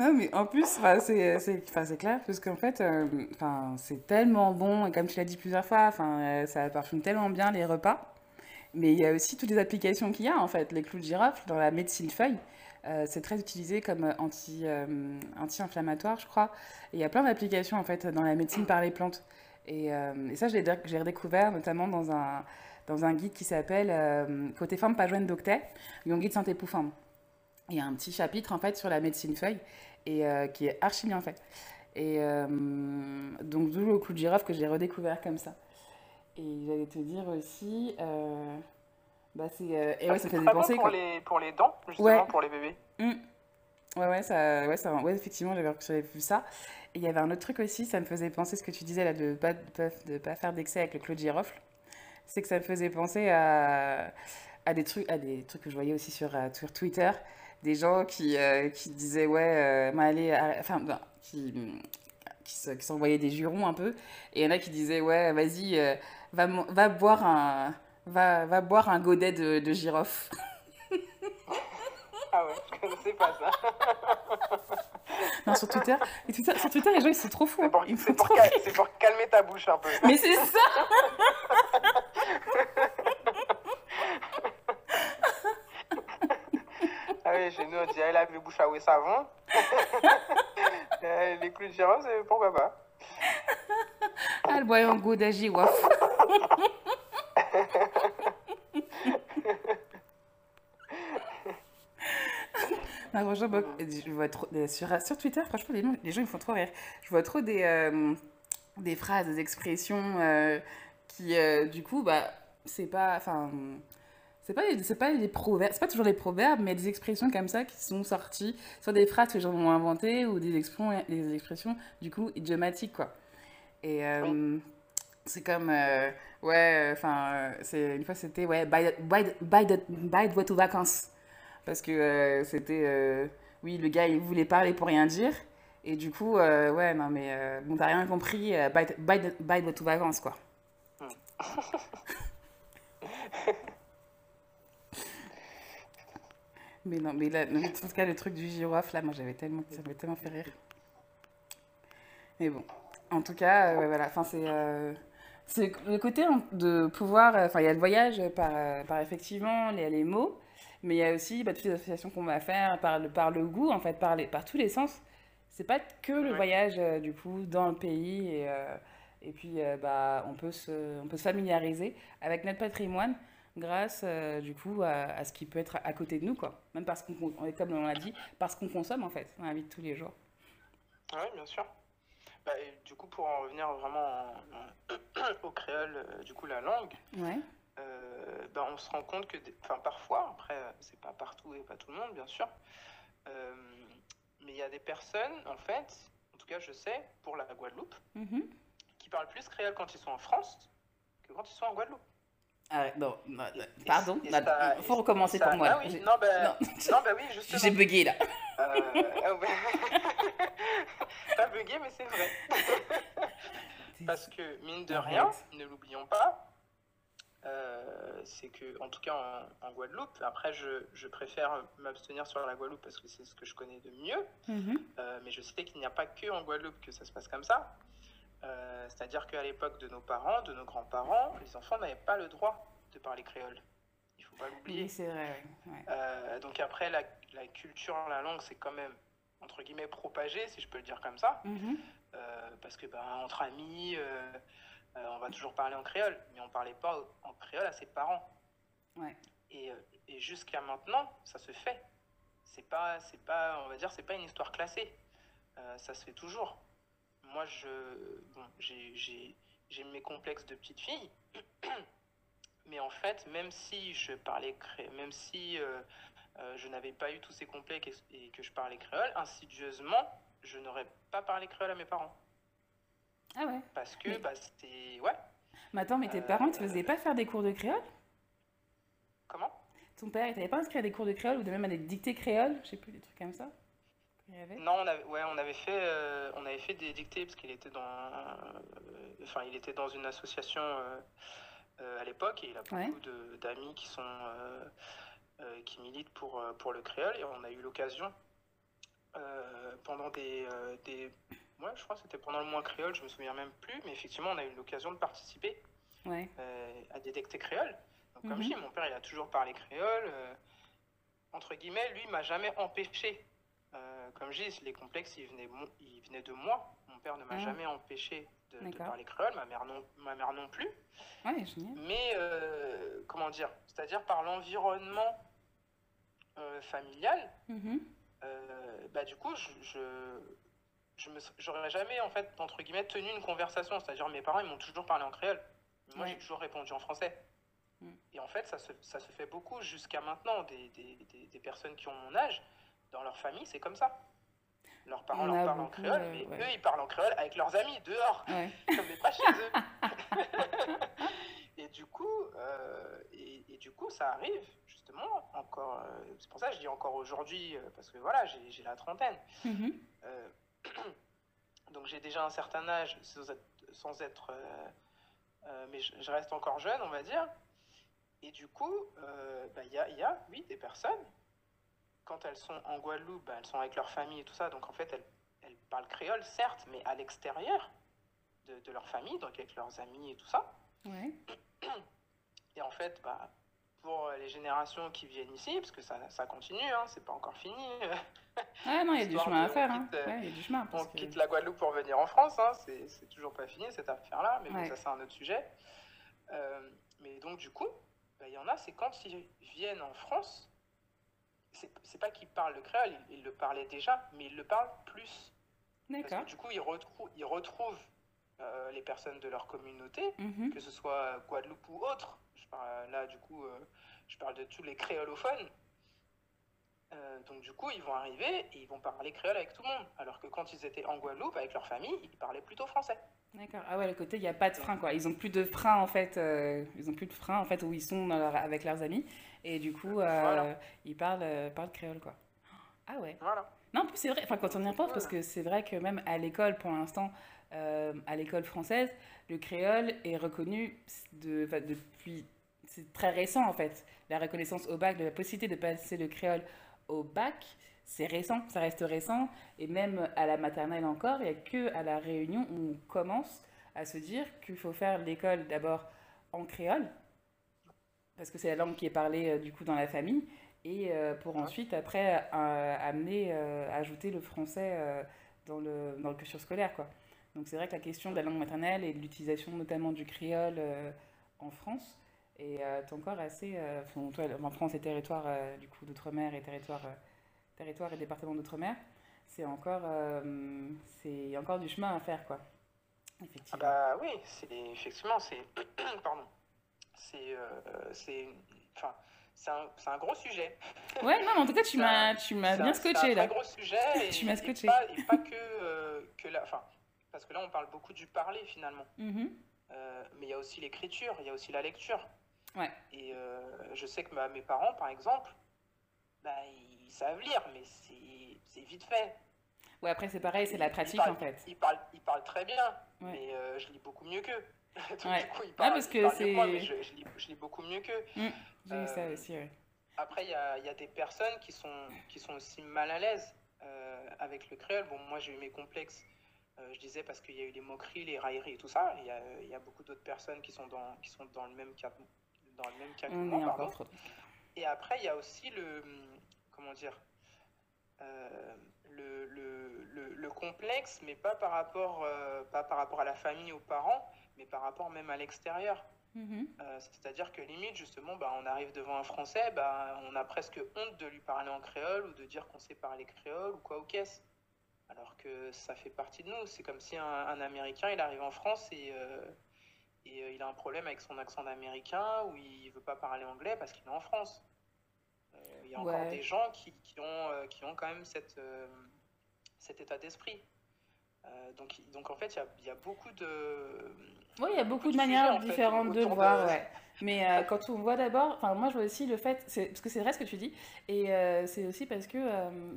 Non, mais en plus, c'est, clair, parce qu'en fait, euh, c'est tellement bon, et comme tu l'as dit plusieurs fois, euh, ça parfume tellement bien les repas. Mais il y a aussi toutes les applications qu'il y a, en fait. Les clous de girofle, dans la médecine feuille, euh, c'est très utilisé comme euh, anti, euh, anti-inflammatoire, je crois. il y a plein d'applications, en fait, dans la médecine par les plantes. Et, euh, et ça, je l'ai, j'ai redécouvert, notamment dans un, dans un guide qui s'appelle Côté forme, pas joint d'octet, guide Santé pour forme. Il y a un petit chapitre, en fait, sur la médecine feuille. et euh, qui est archi bien fait. Et euh, donc, d'où le coup de girafe que j'ai redécouvert comme ça. Et j'allais te dire aussi. Euh, bah, c'est. Euh, et ouais, ah, ça fait des pensées. Pour, les, pour les dents, justement, ouais. pour les bébés. Mmh. Ouais, ouais, ça, ouais, ça, ouais, effectivement, j'avais vu ça. Et il y avait un autre truc aussi, ça me faisait penser ce que tu disais là de ne pas, de, de pas faire d'excès avec le Claude Girofle. C'est que ça me faisait penser à, à, des trucs, à des trucs que je voyais aussi sur, euh, sur Twitter. des gens qui, euh, qui disaient, ouais, bah, euh, allez, enfin, bah, qui, qui, qui s'envoyaient des jurons un peu. Et il y en a qui disaient, ouais, vas-y, euh, va, va, boire un, va, va boire un godet de, de girofle. Ah ouais, je connaissais pas ça. non, sur Twitter, Twitter, sur Twitter, les gens ils sont trop fous. C'est pour, pour, cal pour, calmer ta bouche un peu. Mais c'est ça genou, on dirait, il a vu le bouche à oué savon. les clous de girafe, pourquoi pas Elle ah, boit un goût de girafe. Non, je vois trop, sur, sur, Twitter, franchement, les, les, gens, ils me font trop rire. Je vois trop des, euh, des phrases, des expressions euh, qui, euh, du coup, bah, c'est pas. Enfin, c'est pas, c'est pas les proverbes, c'est pas toujours les proverbes, mais des expressions comme ça qui sont sorties, soit des phrases que les gens ont inventées ou des expressions, des expressions du coup idiomatiques quoi. Et euh, oui. Oh. c'est comme euh, ouais, euh, enfin euh, c'est une fois c'était ouais by de boîte aux vacances parce que euh, c'était euh, oui le gars il voulait parler pour rien dire et du coup ouais non mais bon t'as rien compris by de boîte aux vacances quoi. Oui. Hmm. Mais non, mais là, en tout cas, le truc du girofle, là, moi, j'avais tellement, ça m'avait tellement fait rire. Mais bon, en tout cas, euh, ouais, voilà, enfin, c'est... Euh, c'est le côté de pouvoir... Euh, enfin, il y a le voyage par, euh, par effectivement les, les mots, mais il y a aussi bah, toutes les associations qu'on va faire par le, par le goût, en fait, par, les, par tous les sens. C'est pas que le ouais. voyage, du coup, dans le pays et... Euh, et puis, euh, bah, on, peut se, on peut se familiariser avec notre patrimoine grâce euh, du coup à, à, ce qui peut être à côté de nous, quoi. Même parce qu'on, comme on l'a dit, parce qu'on consomme en fait dans la vie de tous les jours. Oui, bien sûr. Bah, et, du coup, pour en revenir vraiment en, en, au créole, euh, du coup, la langue, ouais. euh, bah, on se rend compte que, enfin, parfois, après, euh, c'est pas partout et pas tout le monde, bien sûr, euh, mais il y a des personnes, en fait, en tout cas, je sais, pour la Guadeloupe, mm -hmm. qui parlent plus créole quand ils sont en France que quand ils sont en Guadeloupe. Ah, non, non, non. pardon, il faut recommencer ça, pour moi. Ah oui, non, ben, non. ben oui, justement. J'ai bugué là. Euh, Pas ah bugué, mais c'est vrai. Parce que, mine de rien, ne l'oublions pas, euh, c'est que, en tout cas en, en Guadeloupe, après je, je préfère m'abstenir sur la Guadeloupe parce que c'est ce que je connais de mieux, mm -hmm. euh, mais je sais qu'il n'y a pas que en Guadeloupe que ça se passe comme ça. Euh, C'est-à-dire qu'à l'époque de nos parents, de nos grands-parents, les enfants n'avaient pas le droit de parler créole. Il faut pas l'oublier. Oui, c'est vrai. Ouais. Euh, donc après, la, la, culture, la langue, c'est quand même entre guillemets propagé, si je peux le dire comme ça, mm -hmm. euh, parce que ben entre amis, euh, euh, on va toujours parler en créole, mais on ne parlait pas en créole à ses parents. Ouais. Et, euh, et jusqu'à maintenant, ça se fait. C'est pas, c'est pas, on va dire, c'est pas une histoire classée. ça se fait toujours. moi, je, bon, j'ai, mes complexes de petite fille. Mais en fait, même si je parlais créole, même si euh, euh, je n'avais pas eu tous ces complexes et, et que je parlais créole, insidieusement, je n'aurais pas parlé créole à mes parents. Ah ouais Parce que, mais... bah, c'était. Ouais. Mais attends, mais tes euh... parents ne te faisaient pas faire des cours de créole Comment Ton père, il t'avait pas inscrit à des cours de créole ou de même à des dictées créoles Je sais plus, des trucs comme ça avait... Non, on avait, ouais, on avait fait, euh, on avait fait des dictées parce qu'il était dans, euh, enfin, euh, il était dans une association euh, euh, à l'époque et il a beaucoup ouais. d'amis qui sont, qui militent pour pour le créole et on a eu l'occasion pendant des, des, ouais, je crois que c'était pendant le mois créole, je me souviens même plus, mais effectivement, on a eu l'occasion de participer ouais. à des dictées créoles. Donc, comme mm -hmm. je mhm. dis, mon père, il a toujours parlé créole entre guillemets, lui, m'a jamais empêché Euh, comme je dis, les complexes, ils venaient, ils venaient de moi. Mon père ne m'a ah. jamais empêché de, de, parler créole, ma mère non, ma mère non plus. Ouais, Mais, euh, comment dire C'est-à-dire par l'environnement euh, familial, mm -hmm. bah, du coup, je. je je j'aurais jamais en fait entre guillemets tenu une conversation c'est-à-dire mes parents ils m'ont toujours parlé en créole moi ouais. j'ai toujours répondu en français mm. et en fait ça se, ça se fait beaucoup jusqu'à maintenant des, des, des, des personnes qui ont mon âge dans leur famille, c'est comme ça. Leurs parents leur parlent en créole, mais ouais. eux, ils parlent en créole avec leurs amis dehors, ouais. mais pas chez eux. et du coup, euh, et, et, du coup, ça arrive justement encore. Euh, c'est pour ça que je dis encore aujourd'hui, euh, parce que voilà, j'ai la trentaine. Mm -hmm. donc j'ai déjà un certain âge, sans être, sans être euh, euh, mais je, je, reste encore jeune, on va dire. Et du coup, il bah, y, a, y a, oui, des personnes quand elles sont en Guadeloupe, elles sont avec leur famille et tout ça, donc en fait, elles, elles parlent créole, certes, mais à l'extérieur de, de, leur famille, donc avec leurs amis et tout ça. Ouais. Et en fait, bah, pour les générations qui viennent ici, parce que ça, ça continue, hein, c'est pas encore fini. Euh, ah non, il y a du chemin à faire. Quitte, hein. ouais, y a du chemin on que... quitte la Guadeloupe pour venir en France, hein, c'est toujours pas fini cette affaire-là, mais ouais. bon, ça c'est un autre sujet. Euh, mais donc du coup, il bah, y en a, c'est quand ils viennent en France, c'est pas qu'il parle le créole, il, il, le parlait déjà, mais il le parle plus. D'accord. Du coup, il, retrou il retrouve euh, les personnes de leur communauté, mm -hmm. que ce soit Guadeloupe ou autre. Je parle, là, du coup, euh, je parle de tous les créolophones. Euh, donc du coup, ils vont arriver et ils vont parler créole avec tout le monde. Alors que quand ils étaient en Guadeloupe avec leur famille, ils parlaient plutôt français. D'accord. Ah ouais, le côté, il n'y a pas de frein, quoi. Ils n'ont plus de frein, en fait. Euh, ils ont plus de frein, en fait, où ils sont leur, avec leurs amis. Et du coup, euh, voilà. ils parlent, euh, parlent créole, quoi. Ah ouais. Voilà. Non, en plus, c'est vrai. Enfin, quand on y repense, voilà. parce que c'est vrai que même à l'école, pour l'instant, euh, à l'école française, le créole est reconnu de, depuis... C'est très récent, en fait. La reconnaissance au bac, de la possibilité de passer le créole au bac, c'est récent, ça reste récent. Et même à la maternelle encore, il n'y a que à la réunion où on commence à se dire qu'il faut faire l'école d'abord en créole, parce que c'est la langue qui est parlée euh, du coup dans la famille, et euh, pour ensuite après euh, amener, euh, ajouter le français euh, dans, le, dans le cursus scolaire. Quoi. Donc c'est vrai que la question de la langue maternelle et de l'utilisation notamment du créole euh, en France, Et euh, ton corps est assez. Euh, enfin, toi, en France, et territoire euh, du coup d'outre-mer et territoire, territoire et département d'outre-mer, c'est encore, c'est encore du chemin à faire, quoi. Ah effectivement. Ah bah oui, c'est effectivement, c'est pardon, c'est c'est enfin c'est un, un, gros sujet. Ouais, non, mais en tout cas, tu m'as, tu m'as bien scotché là. C'est un gros sujet. Et, tu m'as scotché. Et pas, et pas que, euh, que la, fin, parce que là, on parle beaucoup du parler finalement. Mm -hmm. euh, mais il y a aussi l'écriture, il y a aussi la lecture. Ouais. Et euh, je sais que ma, mes parents, par exemple, bah, ils savent lire, mais c'est vite fait. Ouais, après, c'est pareil, c'est la pratique, parlent, en fait. Ils parlent, ils parlent très bien, ouais. mais euh, je lis beaucoup mieux qu'eux. Donc, ouais. du coup, ils ah, parlent, ah, parce ils que c'est... mais je, je, lis, je, lis, beaucoup mieux qu'eux. Mmh, j'ai euh, eu ça aussi, ouais. Après, il y a, y a, des personnes qui sont, qui sont aussi mal à l'aise euh, avec le créole. Bon, moi, j'ai eu mes complexes euh, je disais parce qu'il y a eu les moqueries, les railleries et tout ça. Il y a, il y a beaucoup d'autres personnes qui sont, dans, qui sont dans le même cas, dans le même cas que moi, pardon. Trop... Et après, il y a aussi le. Comment dire euh, le, le, le, le, complexe, mais pas par, rapport, euh, pas par rapport à la famille, aux parents, mais par rapport même à l'extérieur. Mmh. Euh, C'est-à-dire que limite, justement, bah, on arrive devant un Français, bah, on a presque honte de lui parler en créole ou de dire qu'on sait parler créole ou quoi ou quest de nous. C'est comme si un, un, il Et euh, il a un problème avec son accent d'américain où il veut pas parler anglais parce qu'il est en France. Euh, il y a encore ouais. des gens qui, qui ont, euh, qui ont quand même cette, euh, cet état d'esprit. Euh, donc, donc en fait, il y, y, a beaucoup de. Oui, il y a beaucoup, de manières sujets, différentes fait, de le voir, de... ouais. Mais euh, quand on voit d'abord, enfin moi je vois aussi le fait, parce que c'est vrai ce que tu dis, et euh, c'est aussi parce que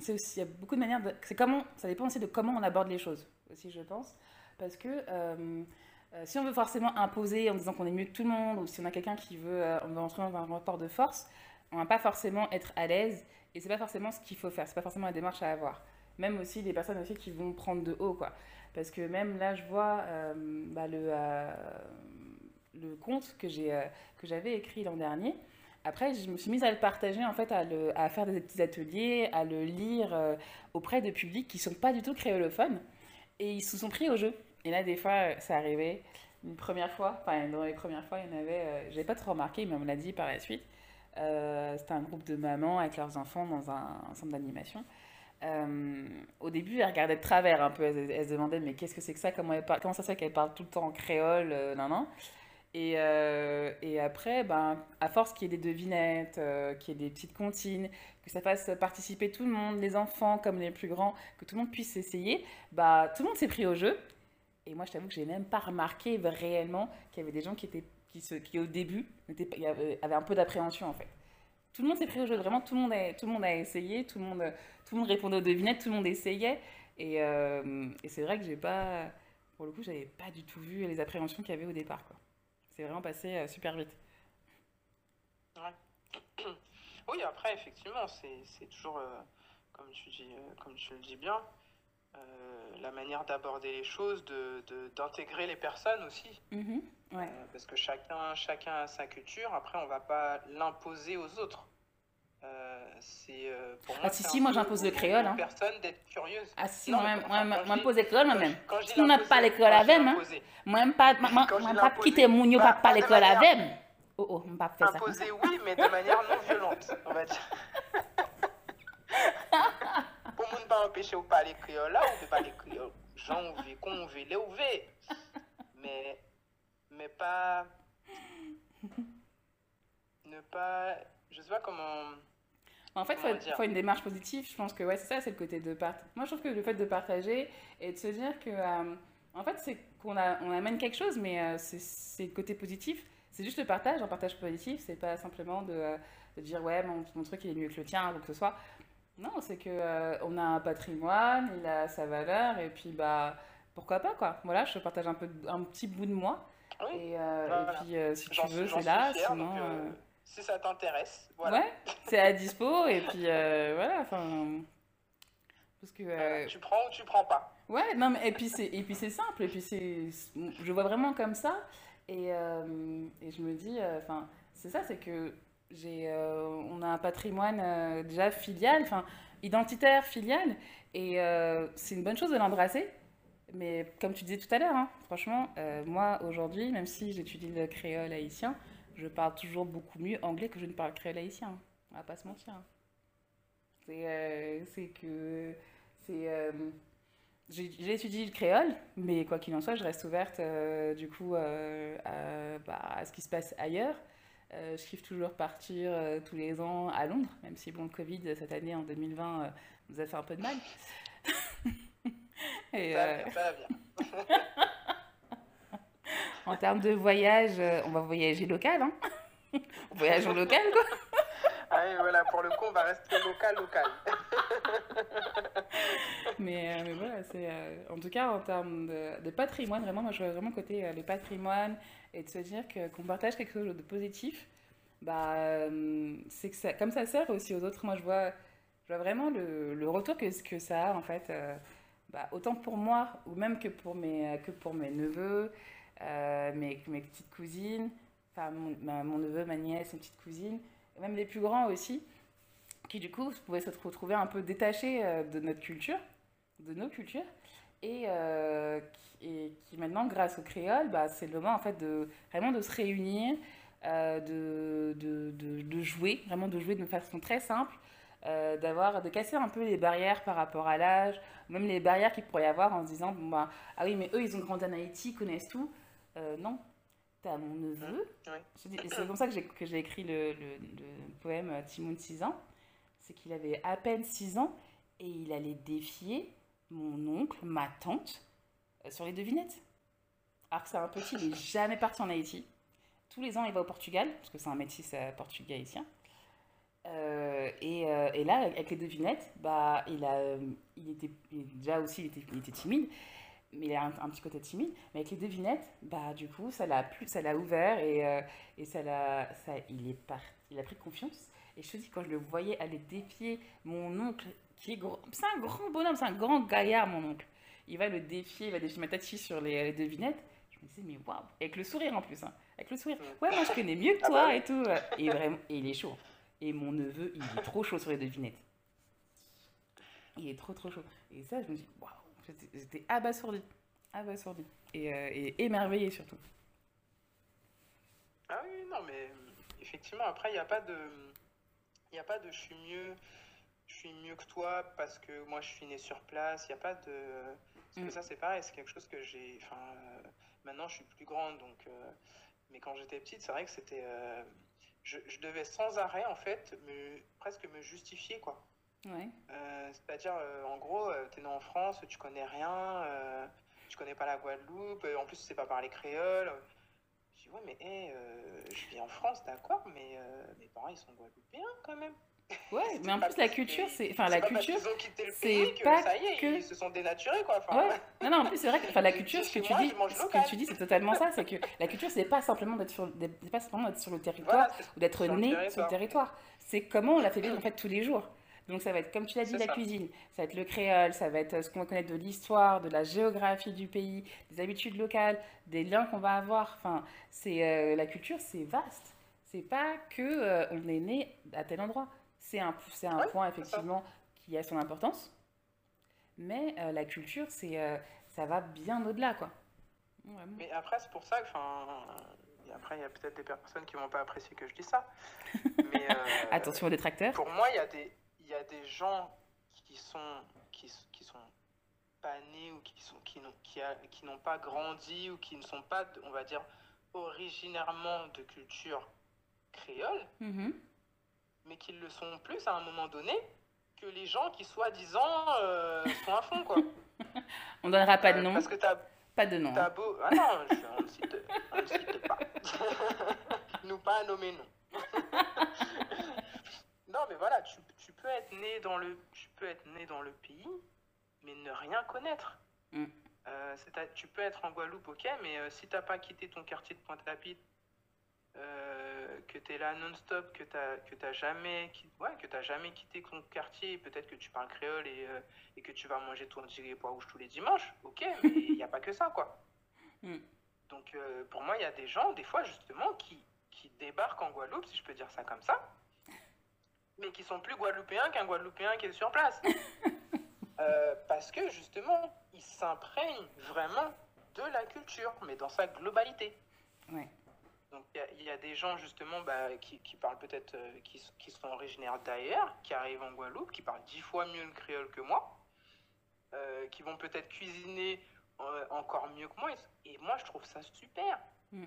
c'est aussi, il y a beaucoup de manières, de, comment, ça dépend aussi de comment on aborde les choses aussi, je pense, parce que Euh, si on veut forcément imposer en disant qu'on est mieux que tout le monde, ou si on a quelqu'un qui veut, euh, on va entrer dans un rapport de force, on va pas forcément être à l'aise, et c'est pas forcément ce qu'il faut faire, c'est pas forcément la démarche à avoir. Même aussi des personnes aussi qui vont prendre de haut, quoi. Parce que même là, je vois euh, bah, le, euh, le compte euh, que j'avais écrit l'an dernier, après, je me suis mise à le partager, en fait, à, le, à faire des petits ateliers, à le lire euh, auprès de publics qui ne sont pas du tout créolophones. Et ils se sont pris au jeu. Et là, des fois, ça euh, arrivait une première fois, enfin, dans les premières fois, il y en avait, euh, j'ai pas trop remarqué, mais on me l'a dit par la suite. Euh, c'était un groupe de mamans avec leurs enfants dans un centre d'animation. Euh, au début, elle regardait de travers un peu. Elle, elle se demandait mais qu'est-ce que c'est que ça Comment, elle parle, comment ça se fait qu'elle parle tout le temps en créole euh, Non, non. Et, euh, et, après, ben, à force qu'il y ait des devinettes, qu'il y ait des petites comptines, que ça fasse participer tout le monde, les enfants comme les plus grands, que tout le monde puisse essayer, bah, tout le monde s'est pris au jeu. Et moi, je t'avoue que j'ai même pas remarqué réellement qu'il y avait des gens qui, étaient, qui, se, qui au début, étaient y avaient un peu d'appréhension en fait. Tout le monde s'est pris au jeu, vraiment, tout le, monde a, tout le monde a essayé, tout le monde, tout le monde répondait aux devinettes, tout le monde essayait. Et, euh, et c'est vrai que j'ai pas, pour le coup, j'avais pas du tout vu les appréhensions qu'il y avait au départ. Quoi. C'est vraiment passé euh, super vite. Ouais. oui, après, effectivement, c'est, toujours, euh, comme, tu dis, euh, comme tu le dis bien, Euh, la manière d'aborder les choses, d'intégrer de, de, les personnes aussi. Mm-hmm. Euh, parce que chacun, chacun a sa culture, après on ne va pas l'imposer aux autres. Euh, c'est euh, pour ah, ah, si si moi j'impose le créole ah si ma moi, moi, impose le créole moi même si on n'a pas le avec moi même pas quitter mon pas pas le oh, oh, pas faire ça imposer oui pa empeshe ou pale kriol la, ou pe pale kriol, jan ou ve, kon ou ve, le ou ve. Me, pa, ne pa, je sais pas comment... En fait, il faut, faut, une démarche positive. Je pense que ouais, c'est ça, c'est le côté de partager. Moi, je trouve que le fait de partager et de se dire que, euh, en fait, c'est qu'on on amène quelque chose, mais euh, c'est le côté positif. C'est juste le partage, un partage positif. C'est pas simplement de, euh, de dire ouais, mon, mon, truc il est mieux que le tien ou que ce soit. Non, c'est que euh, on a un patrimoine, il a sa valeur, et puis bah pourquoi pas quoi. Voilà, je te partage un peu un petit bout de moi. Oui. Et, euh, voilà. et, puis euh, si tu veux, c'est là. Fière, sinon, donc, euh, euh, si ça t'intéresse, voilà. Ouais, c'est à dispo et puis euh, voilà. Enfin, parce que tu prends ou tu prends pas. Ouais, non mais et puis c'est et puis c'est simple et puis c'est je vois vraiment comme ça et, et je me dis enfin c'est ça c'est que Euh, on a un patrimoine euh, déjà filial, enfin identitaire, filial, et euh, c'est une bonne chose de l'embrasser. Mais comme tu disais tout à l'heure, hein, franchement, moi aujourd'hui, même si j'étudie le créole haïtien, je parle toujours beaucoup mieux anglais que je ne parle créole haïtien. On va pas se mentir. C'est euh, que. C'est. Euh, j'ai étudié le créole, mais quoi qu'il en soit, je reste ouverte euh, du coup à, bah, à, ce qui se passe ailleurs. Euh, je kiffe toujours partir euh, tous les ans à Londres, même si bon, le Covid euh, cette année en 2020 euh, nous a fait un peu de mal. Et, ça, euh, en termes de voyage, euh, on va voyager local. Hein voyage en local, quoi. ah oui, voilà, pour le coup, on va rester local, local. mais, mais, voilà, c'est en tout cas en termes de, de patrimoine, vraiment, moi je vois vraiment côté le patrimoine, et de se dire que, qu'on partage quelque chose de positif, bah, euh, c'est que ça, comme ça sert aussi aux autres. Moi, je vois, je vois vraiment le, le retour que, que ça a, en fait, euh, bah, autant pour moi, ou même que pour mes, que pour mes neveux, euh, mes, mes, petites cousines, enfin, mon, ma, mon, neveu, ma nièce, mes petites cousines, même les plus grands aussi, qui, du coup, pouvaient se retrouver un peu détachés euh, de notre culture, de nos cultures, et, euh, qui, et qui, maintenant, grâce au créole, bah, c'est le moment en fait de vraiment de se réunir, euh, de, de, de, de, jouer, vraiment de jouer de façon très simple, euh, d'avoir, de casser un peu les barrières par rapport à l'âge, même les barrières qu'il pourrait y avoir en se disant, bon, bah, ah oui, mais eux, ils ont grandi en Haïti, ils connaissent tout. Euh, non, t'as mon neveu. Mmh, oui. C'est comme ça que j'ai écrit le, le, le, poème euh, Timon de 6 ans, c'est qu'il avait à peine 6 ans et il allait défier mon oncle, ma tante, euh, sur les devinettes. Alors que c'est un petit, il n'est jamais parti en Haïti. Tous les ans, il va au Portugal, parce que c'est un métis euh, portugais haïtien. Euh, et, euh, et, là, avec les devinettes, bah, il, a, euh, il, était, il, déjà aussi, il était, il était, timide, mais il a un, un, petit côté timide. Mais avec les devinettes, bah, du coup, ça l'a plus, ça l'a ouvert et, euh, et ça a ça, il est par, il a pris confiance. Et je te dis, quand je le voyais aller défier mon oncle qui est gros. C'est un grand bonhomme, c'est un grand gaillard, mon oncle. Il va le défier, il va défier ma Matati sur les, les, devinettes. Je me disais, mais waouh, avec le sourire en plus, hein. avec le sourire. Ouais, moi je connais mieux que ah, toi et tout. Euh, et vraiment, et il est chaud. Et mon neveu, il est trop chaud sur les devinettes. Il est trop trop chaud. Et ça, je me dis, waouh, j'étais abasourdi. Abasourdi. Et, euh, et émerveillé surtout. Ah oui, non, mais effectivement, après, il n'y a pas de. Il n'y a pas de je suis mieux. suis mieux que toi parce que moi je suis né sur place. Il n'y a pas de. Parce que mm. ça, c'est pareil, c'est quelque chose que j'ai. Enfin, euh, maintenant je suis plus grande, donc. Euh... Mais quand j'étais petite, c'est vrai que c'était. Euh... Je, je, devais sans arrêt, en fait, me... presque me justifier, quoi. Ouais. Euh, c'est-à-dire, euh, en gros, euh, t'es né en France, tu connais rien, tu connais pas la Guadeloupe, en plus, tu sais pas parler créole. Je dis, ouais, mais hey, je vis en France, d'accord, mais mes parents, ils sont guadeloupéens quand même. Ouais, mais en plus, la culture, c'est. Enfin, la culture. C'est pas ça y est, que... ils se sont dénaturés, quoi. Enfin, ouais. Non, non, en plus, c'est vrai que enfin, la culture, ce que, tu dis, ce que tu dis, c'est totalement ça. C'est que la culture, c'est pas simplement d'être sur, sur le territoire voilà, ou d'être né sur le territoire. C'est comment on la fait vivre, en fait, tous les jours. Donc, ça va être, comme tu l'as dit, la ça. cuisine, ça va être le créole, ça va être euh, ce qu'on va connaître de l'histoire, de la géographie du pays, des habitudes locales, des liens qu'on va avoir. Enfin, c'est euh, la culture, c'est vaste. C'est pas que euh, on est né à tel endroit. C'est un, c'est un point, effectivement, qui a son importance. Mais euh, la culture, c'est, euh, ça va bien au-delà, quoi. Ouais, Mais après, c'est pour ça que, après, il y a peut-être des personnes qui vont pas apprécier que je dis ça. Mais, euh, Attention aux détracteurs. Pour moi, il y a des, il y a des gens qui sont, qui, qui sont pas nés ou qui sont, qui n'ont, qui, a, qui n'ont pas grandi ou qui ne sont pas, on va dire, originairement de culture créole. Mm -hmm. mais qu'ils le sont plus à un moment donné que les gens qui, soi-disant, euh, sont à fond, quoi. On donnera pas de euh, nom. parce que t'as... Pas de nom. T'as beau... Ah non, je... on ne cite, on ne cite pas. Nous pas nommer nom. non, mais voilà, tu, tu, peux être né dans le, tu peux être né dans le pays, mais ne rien connaître. Mm. Euh, c'est à, tu peux être en Guadeloupe, ok, mais euh, si t'as pas quitté ton quartier de Pointe-à-Pitre euh, que tu es là non-stop, que tu n'as jamais, ouais, que as jamais quitté ton quartier, peut-être que tu parles créole et, euh, et, que tu vas manger ton petit pois rouge tous les dimanches, ok, mais il n'y a pas que ça, quoi. Mm. Donc euh, pour moi, il y a des gens, des fois justement, qui, qui débarquent en Guadeloupe, si je peux dire ça comme ça, mais qui sont plus guadeloupéens qu'un guadeloupéen qui est sur place. Euh, parce que justement, ils s'imprègnent vraiment de la culture, mais dans sa globalité. Ouais. Donc il y, y, a des gens justement bah, qui, qui, parlent peut-être, euh, qui, qui, sont originaires d'ailleurs, qui arrivent en Guadeloupe, qui parlent dix fois mieux le créole que moi, euh, qui vont peut-être cuisiner euh, encore mieux que moi. Et, et, moi, je trouve ça super. Mm.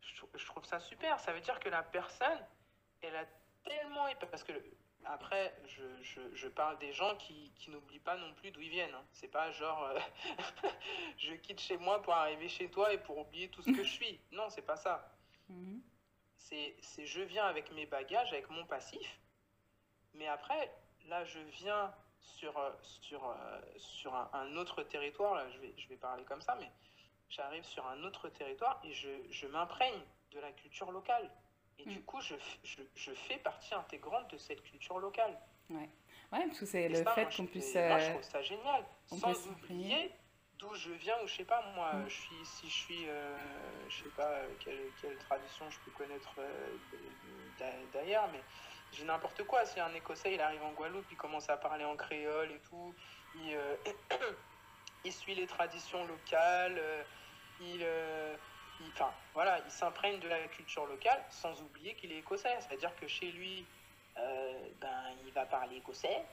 Je, je, trouve ça super. Ça veut dire que la personne, elle a tellement... Parce que Après, je, je, je, parle des gens qui, qui n'oublient pas non plus d'où ils viennent. Hein. C'est pas genre euh, je quitte chez moi pour arriver chez toi et pour oublier tout ce que je suis. Non, c'est pas ça. Mm -hmm. C'est je viens avec mes bagages, avec mon passif. Mais après, là, je viens sur, euh, sur, euh, sur un, un autre territoire. Là, je vais, je vais parler comme ça, mais j'arrive sur un autre territoire et je, je m'imprègne de la culture locale. Et mm. du coup, je, je, je, fais partie intégrante de cette culture locale. Ouais, ouais parce que c'est le ça, fait qu'on puisse. Moi, je euh, trouve ça génial. Sans oublier d'où je viens, ou je sais pas, moi, mm. je suis, si je suis, euh, je sais pas euh, quelle, quelle tradition je peux connaître euh, d'ailleurs, mais j'ai n'importe quoi. Si un Écossais, il arrive en Guadeloupe, il commence à parler en créole et tout, il, euh, il suit les traditions locales, euh, il enfin, voilà, il s'imprègne de la culture locale sans oublier qu'il est écossais. C'est-à-dire que chez lui, euh, ben, il va parler écossais,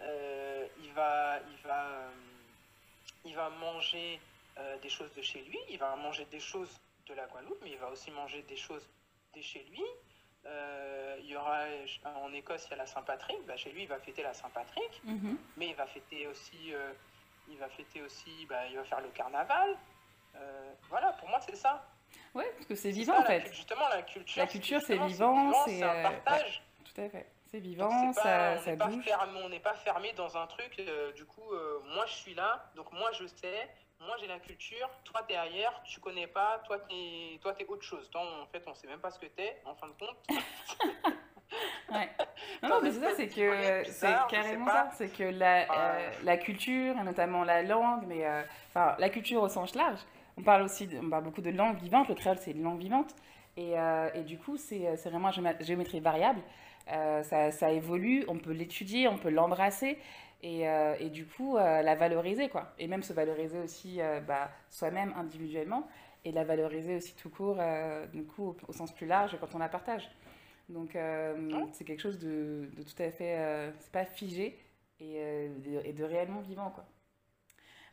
euh, il, va, il, va, euh, il va manger euh, des choses de chez lui, il va manger des choses de la Guadeloupe, mais il va aussi manger des choses de chez lui. Euh, il y aura en Écosse, il y a la Saint-Patrick. Ben, chez lui, il va fêter la Saint-Patrick, mm -hmm. mais il va fêter aussi, euh, il va fêter aussi, il va faire le carnaval. Euh, voilà, pour moi, c'est ça. Oui, parce que c'est vivant ça, en fait. La, justement, la culture. La culture, c'est vivant, c'est un euh, partage. Ouais, tout à fait. C'est vivant, est pas, ça, on ça pas bouge. Fermé, on n'est pas fermé dans un truc. Euh, du coup, euh, moi, je suis là, donc moi, je sais. Moi, j'ai la culture. Toi, t'es ailleurs. Tu connais pas. Toi, t'es, toi, es autre chose. Toi, en fait, on sait même pas ce que t'es. En fin de compte. ouais. Non, non mais c'est ça, c'est que c'est carrément ça. C'est que la, euh, la culture, et notamment la langue, mais euh, enfin, la culture au sens large, on parle aussi, de, on parle beaucoup de langue vivante. Le créole, c'est une langue vivante. Et, euh, et du coup, c'est vraiment géométrie variable. Euh, ça, ça, évolue, on peut l'étudier, on peut l'embrasser et, euh, et, du coup euh, la valoriser quoi. Et même se valoriser aussi euh, bah, soi-même individuellement et la valoriser aussi tout court, euh, du coup au, au, sens plus large quand on la partage. Donc oh. c'est quelque chose de, de, tout à fait, c'est pas figé et, de, et de réellement vivant quoi.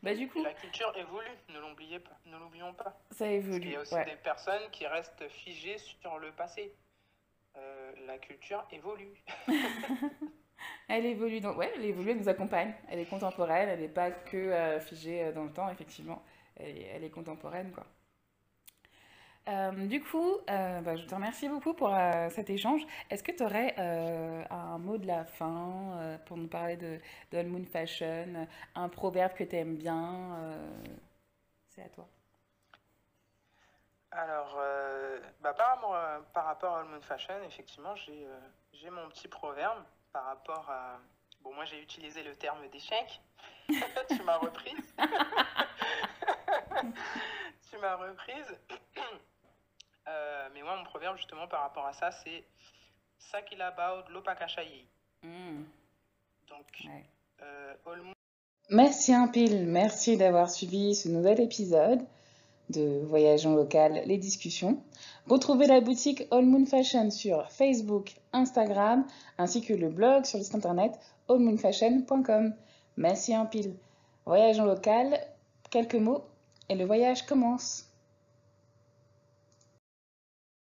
Bah, du coup... La culture évolue, ne l'oubliez pas, ne l'oublions pas. Ça évolue. Il y a aussi ouais. des personnes qui restent figées sur le passé. Euh, la culture évolue. elle évolue, donc ouais, elle évolue, elle nous accompagne. Elle est contemporaine, elle n'est pas que euh, figée euh, dans le temps, effectivement. Elle est, elle est contemporaine, quoi. Euh, du coup, euh, bah, je te remercie beaucoup pour euh, cet échange. Est-ce que tu aurais euh, un mot de la fin euh, pour nous parler de, de Moon Fashion, un proverbe que tu aimes bien euh, C'est à toi. Alors, bah, par, par, rapport à All Moon Fashion, effectivement, j'ai mon petit proverbe par rapport à... Bon, moi j'ai utilisé le terme d'échec. tu m'as reprise. tu m'as reprise. Euh, mais moi, mon proverbe, justement, par rapport à ça, c'est Sakila Baud Lopakashayi. Mm. Donc, ouais. euh, all... Merci un pile, merci d'avoir suivi ce nouvel épisode de Voyageons local, les discussions. Retrouvez la boutique All Moon Fashion sur Facebook, Instagram, ainsi que le blog sur le site internet allmoonfashion.com. Merci un pile. Voyageons local, quelques mots et le voyage commence.